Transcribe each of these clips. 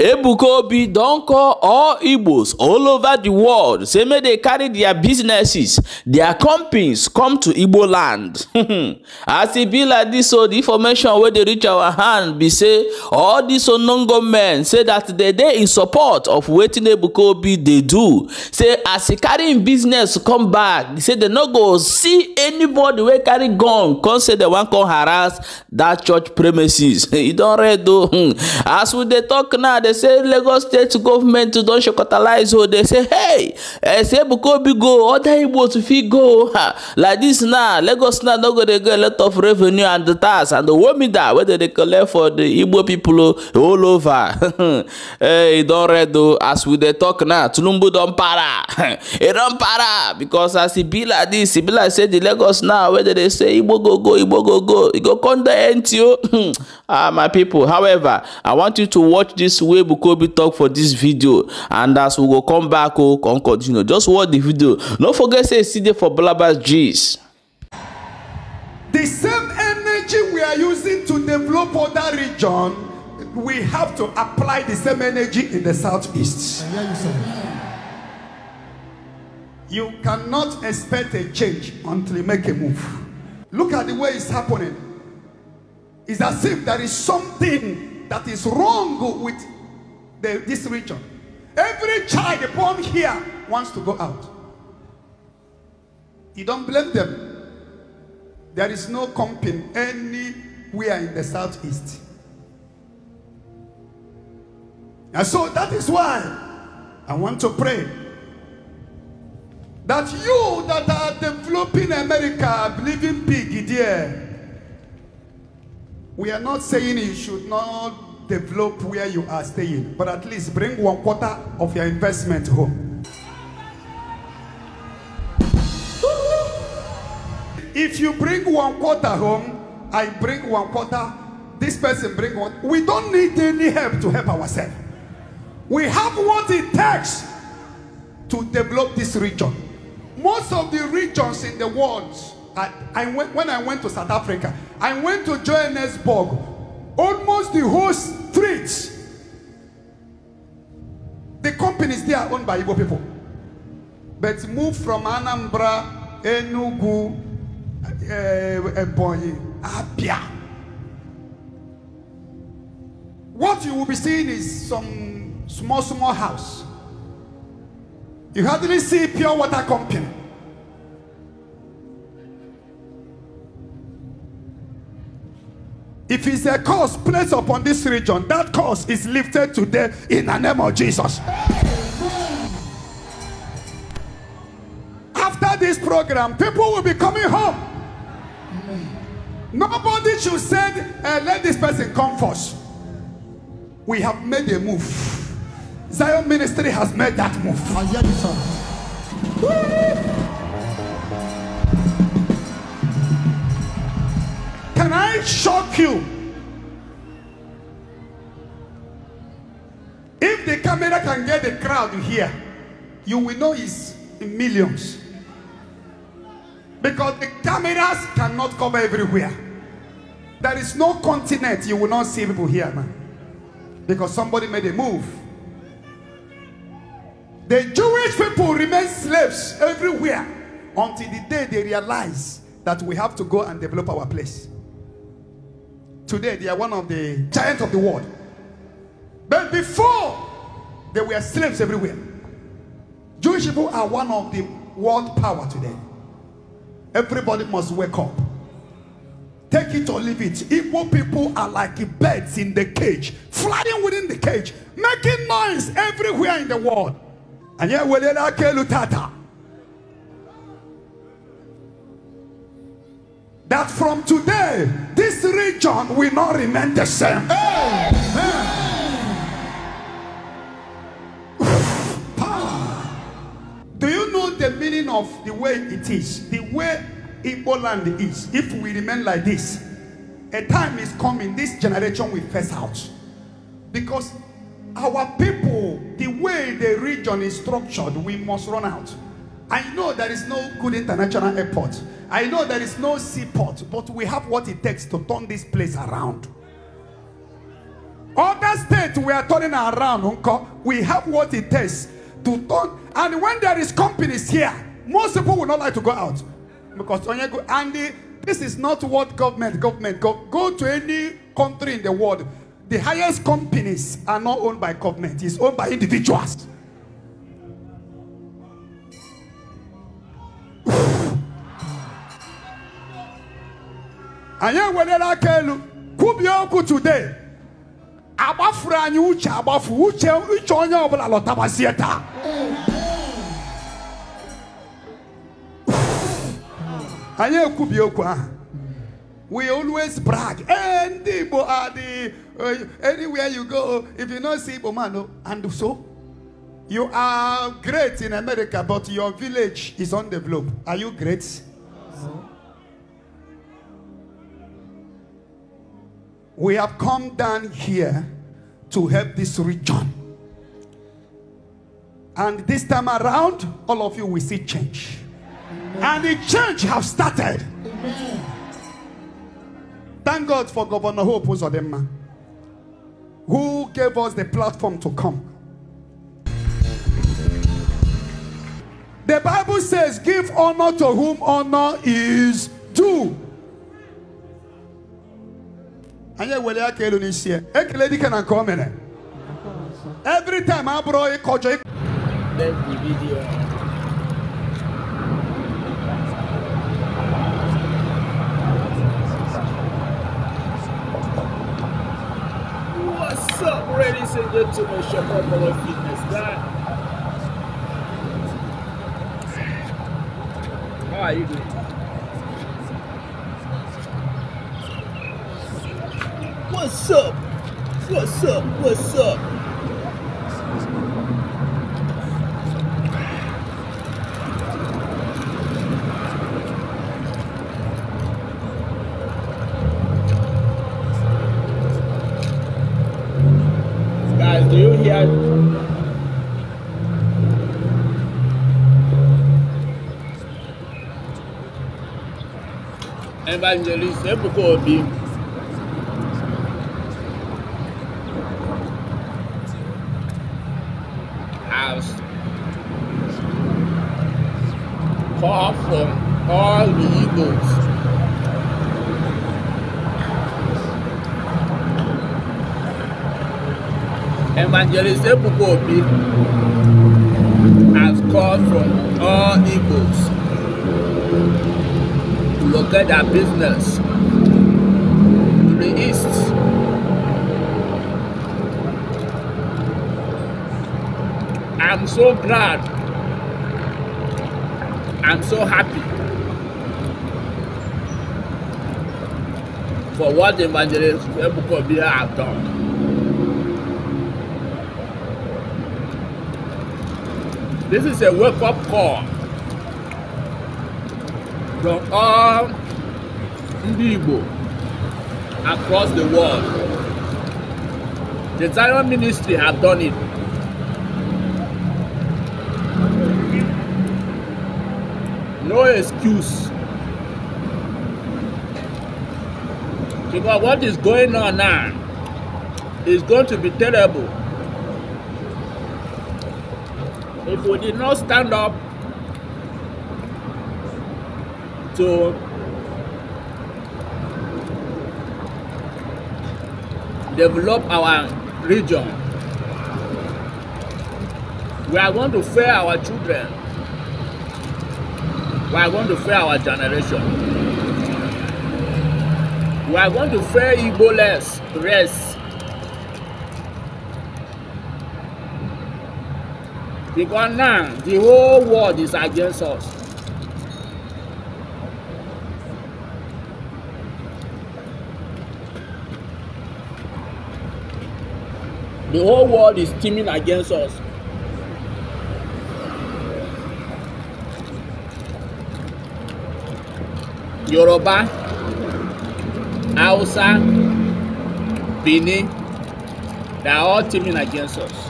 ebuka obi don call all igbos all over the world say make dey carry their businesses their companies come to igbo land as e be like dis so di information wey dey reach our hand be say all these unknown men say that dey dey in support of wetin ebuka obi dey do say as e carry im business come back say dem no go see anybody wey carry gun come say dem wan come harass dat church premises e don red o as we dey talk now dey say lagos state government don shekotalize o dey say hey esebuka obi go other igbo to fit go like dis now lagos now no go dey get a lot of revenue and tax and the womida wey dem dey collect for di igbo pipo all over hey eh, e don red o as we dey talk now tinubu don para e don para because as e be like dis e be like say di lagos now wey dem dey say igbo go go igbo go go e go come dey empty o ah my pipo however i want you to watch dis way wey be talk for this video and as we go come back o oh, come continue just watch the video no forget say e still dey for balabas G's. the same energy we are using to develop other region we have to apply the same energy in the southeast. You cannot expect a change until you make a move. Look at the way it's happening. It's as if there is something that is wrong with the, this region. Every child born here wants to go out. You don't blame them. There is no company anywhere in the southeast. And so that is why I want to pray that you that are developing America, believing big, dear, we are not saying you should not develop where you are staying, but at least bring one quarter of your investment home. if you bring one quarter home, I bring one quarter, this person bring one. We don't need any help to help ourselves. We have what it takes to develop this region. Most of the regions in the world, I, I went, when I went to South Africa, I went to Johannesburg, Almost the whole street. The companies they are owned by Igbo people. But move from Anambra, Enugu, eh, Ebonyi, uh, Abia. What you will be seeing is some small, small house. You hardly see pure water company. If it's a curse placed upon this region, that curse is lifted today in the name of Jesus. After this program, people will be coming home. Nobody should say, hey, eh, let this person come first. We have made a move. Zion Ministry has made that move. Can I shock you? If the camera can get the crowd here, you will know it's in millions. Because the cameras cannot cover everywhere. There is no continent you will not see people here, man. Because somebody made a move. The Jewish people remain slaves everywhere until the day they realize that we have to go and develop our place. Today, they are one of the giants of the world. But before, they were slaves everywhere. Jewish people are one of the world power today. Everybody must wake up. Take it or leave it. Evil people are like birds in the cage, flying within the cage, making noise everywhere in the world. And yet, that from today, this region will not remain the same. Hey, Do you know the meaning of the way it is? The way Igbo land is. If we remain like this, a time is coming, this generation will face out. Because our people, the way the region is structured, we must run out. I know there is no good international airport. I know there is no seaport, but we have what it takes to turn this place around. Other states we are turning around, uncle. We have what it takes to turn. And when there is companies here, most people will not like to go out because and this is not what government government go, go to any country in the world. The highest companies are not owned by government; it's owned by individuals. anyị ewerela aka elu kwubie today Abafra anyị uche abafu uche uche onye ọbụla lọtabazie taa we always brag eh, anywhere you go if you not see igbo man and so you are great in america but your village is undeveloped are you great We have come down here to help this region. And this time around, all of you will see change. And the change have started. Thank God for Governor Hope Uzodema, who gave us the platform to come. The Bible says, Give honor to whom honor is due. anyị ewere aka elu n'isi ya ekele dike na nke o mere every time abụrụ ịkọjọ What's up, ladies and gentlemen? Shakopolo Fitness Guy. How are you doing? What's up? What's up? What's up? Guys, do you hear? evangelist Ebuka Obi Evangelist Ebuka Obi has called from all Igbos to locate their business to the east. I'm so glad. I'm so happy for what the Evangelist Ebuka Obi have done. This is a wake up call from all ndị across the world. The Zion Ministry have done it. No excuse. Because what is going on now is going to be terrible. people did not stand up to develop our region. We are going to fail our children. We are going to fail our generation. We are going to fail Igbo less, rest. because now the whole world is against us. The whole world is teaming against us. Yoruba, Hausa, Benin, they are all teaming against us.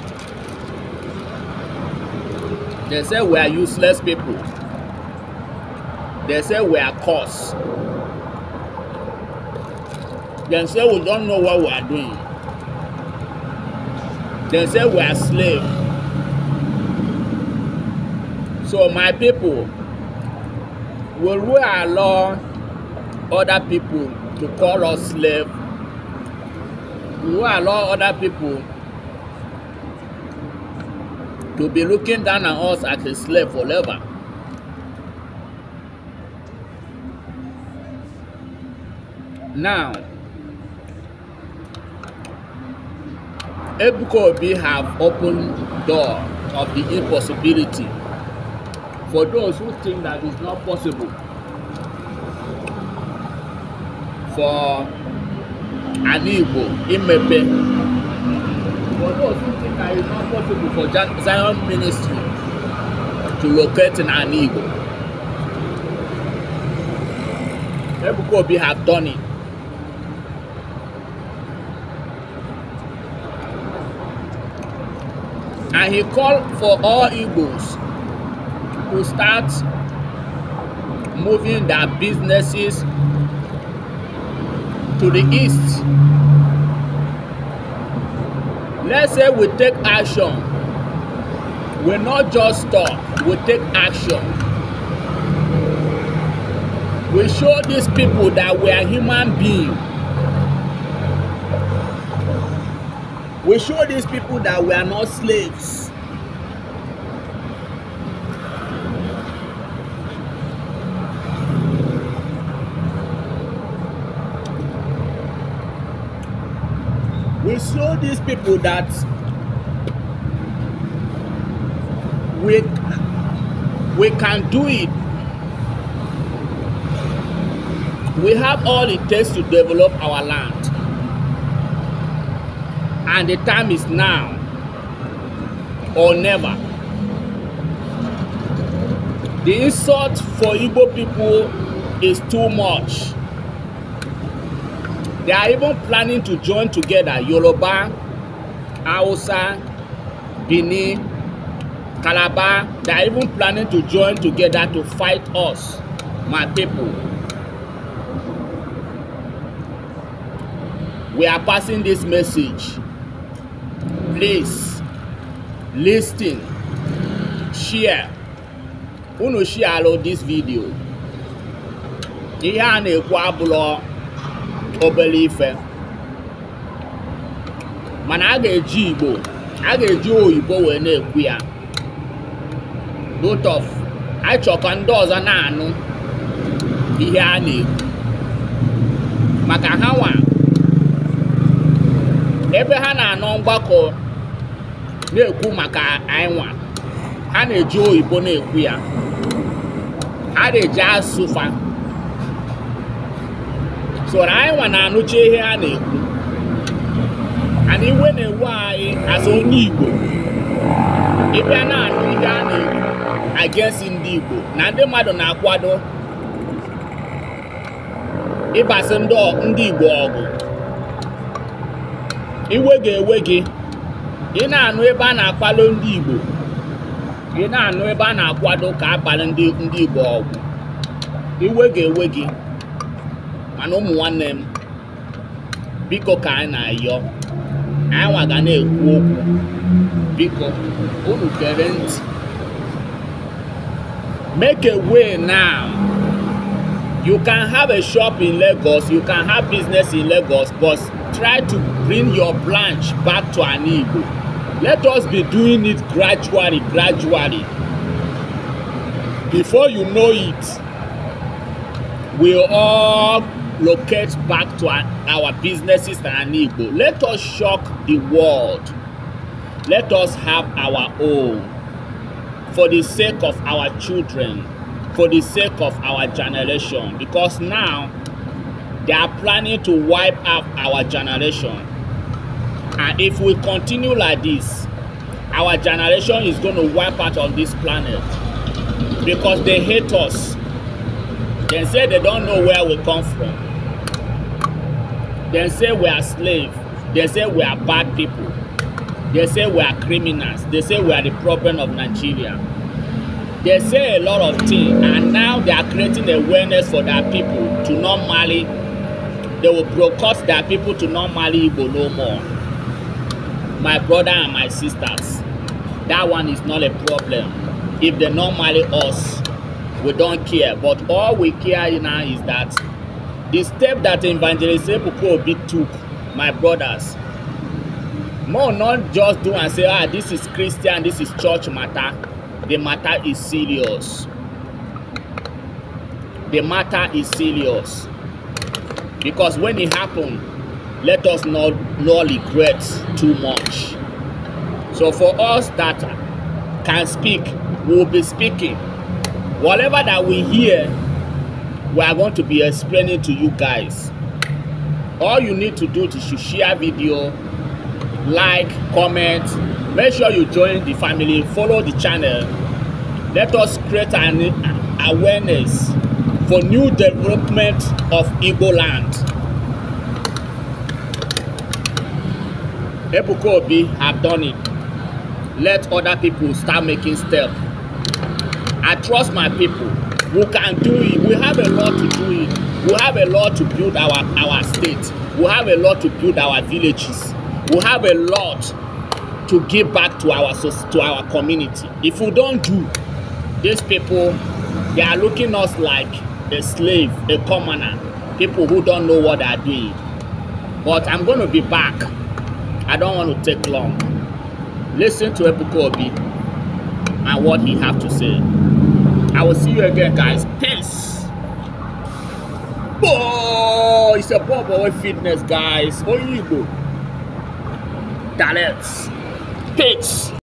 They say we are useless people. They say we are cursed. They say we don't know what we are doing. They say we are slaves. So my people, will we allow other people to call us slaves? Will we allow other people to be looking down on us as a slave forever. Now, Ebuka Obi have opened door of the impossibility for those who think that it's not possible for an Igbo imepe But those who think that it's not possible for Zion Ministry to locate in an Igbo, Ebuka have done it. And he called for all Igbos to start moving their businesses to the east Let's say we take action. We not just talk, we take action. We show these people that we are human beings. We show these people that we are not slaves. show these people that we we can do it we have all it takes to develop our land and the time is now or never the insult for igbo people is too much They are even planning to join together Yoruba, Hausa, Bini, Calabar. They are even planning to join together to fight us, my people. We are passing this message. Please, listen, share. Who knows? share this video. Ihe a na Obere ife mana a ga-eji Igbo a ga-eji oyibo wee na-ekwu ya dotof achọ ndị ọzọ na-anụ ihe a na-ekwu maka ha nwa ebe ha na-anọ mgbakọ na-ekwu maka anyị ha na-eji oyibo na-ekwu ya ha na-eji asụfa Soro anyị nwa na-anụcha ihe ha na-ekwu ana iwe na-ewu anyị asụ onye Igbo ịbịa na-anụ ihe a na-ekwu against ndị Igbo na ndị mmadụ na-akwado ịbasị ndị Igbo ọgụ iwe ga-ewe gị ị na-anụ ebe a na-akwado ndị Igbo ị na-anụ ebe a na-akwado ka abalị ndị Igbo ọgụ iwe ga-ewe gị mana ụmụ nwanne m biko ka anyị na-ayọ anyị nwa na-ekwu okwu biko unu gere ntị make a way now you can have a shop in Lagos you can have business in Lagos but try to bring your branch back to an Igbo let us be doing it gradually gradually before you know it we all locate back to our, our businesses and Igbo. Let us shock the world. Let us have our own for the sake of our children, for the sake of our generation. Because now they are planning to wipe out our generation. And if we continue like this, our generation is going to wipe out on this planet because they hate us. They say they don't know where we come from. They say we are slaves. They say we are bad people. They say we are criminals. They say we are the problem of Nigeria. They say a lot of things, and now they are creating awareness for their people to normally. They will broadcast their people to normally Igbo no more. My brother and my sisters, that one is not a problem. If they normally us, we don't care. But all we care now is that the step that evangelist ebuka obi took my brothers more not just do and say ah this is christian this is church matter the matter is serious the matter is serious because when it happen let us not not regret too much so for us that can speak we will be speaking whatever that we hear we are going to be explaining to you guys all you need to do is to share video like comment make sure you join the family follow the channel let us create an awareness for new development of igbo land ebuka obi have done it let other people start making steps. i trust my people We can do it. We have a lot to do it. We have a lot to build our, our state. We have a lot to build our villages. We have a lot to give back to our to our community. If we don't do, these people, they are looking us like a slave, a commoner, people who don't know what they are doing. But I'm going to be back. I don't want to take long. Listen to Ebuka Obi and what he have to say. I will see you again, guys. Peace. Oh, it's a boy, boy fitness, guys. Oyinbo. Talents. Peace.